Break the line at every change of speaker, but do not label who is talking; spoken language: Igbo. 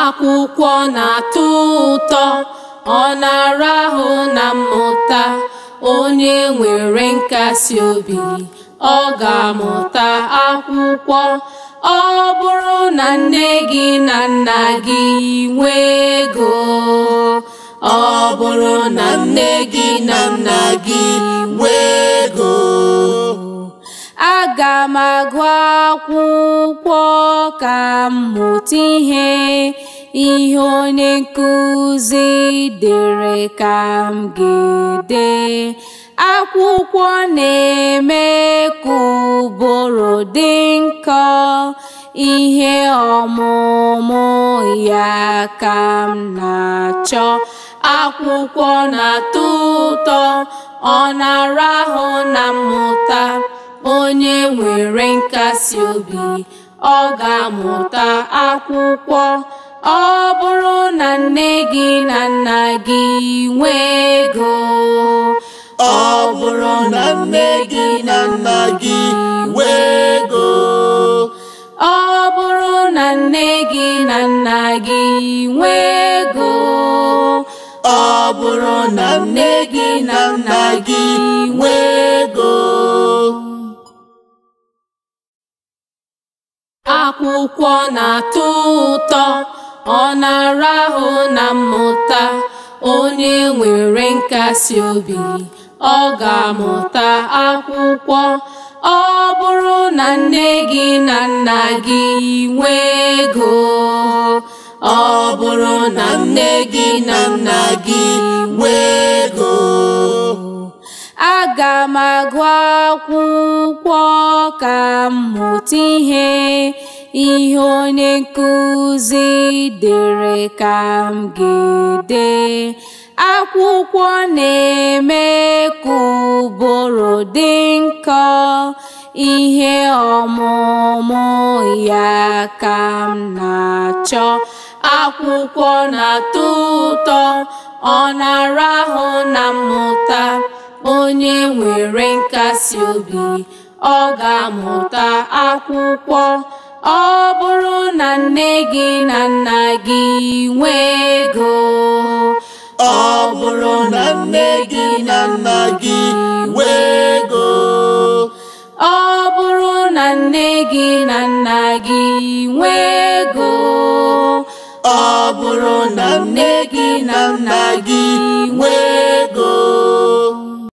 akwụkwọ na-atọ ụtọ ọ na-arahụ na mmụta onye nwere nkasi obi ọ ga-amụta akwụkwọ ọ bụrụ na nne gị na nna gị nwee ego ọ bụrụ na nne gị na nna gị nwee ego aga m agụ akwụkwọ ka m mụta ihe ihe onye nkụzi dere ka m ga akwụkwọ na-eme ka ụbụrụ dị nkọ ihe ọmụmụ ya ka m na-achọ akwụkwọ na-atọ ụtọ ọ na-arahụ na mmụta onye nwere nkasi obi ọ ga-amụta akwụkwọ ọ bụrụ na nne gị na nna gị nwee ego ọ bụrụ na nne gị na nna gị nwee ego ọ bụrụ na nne gị na nna gị nwee ego ọ bụrụ na nne gị na nna akwụkwọ na-atọ ụtọ ọ na-arahụ na mmụta onye nwere nkasi obi ọ ga-amụta akwụkwọ ọ bụrụ na nne gị na nna gị nwee ego ọ bụrụ na nne gị na nna gị nwee ego aga m agụ ka mmụta ihe ihe onye nkụzi dere ka m ga-ede akwụkwọ na-eme ka ụbụrụ dị nkọ ihe ọmụmụ ya ka m na-achọ akwụkwọ na-atọ ụtọ ọ na-arahụ na mmụta onye nwere nkasi obi ọ ga-amụta akwụkwọ ọ bụrụ na nne gị na nna gị nwee ego ọ na nne gị
na nna gị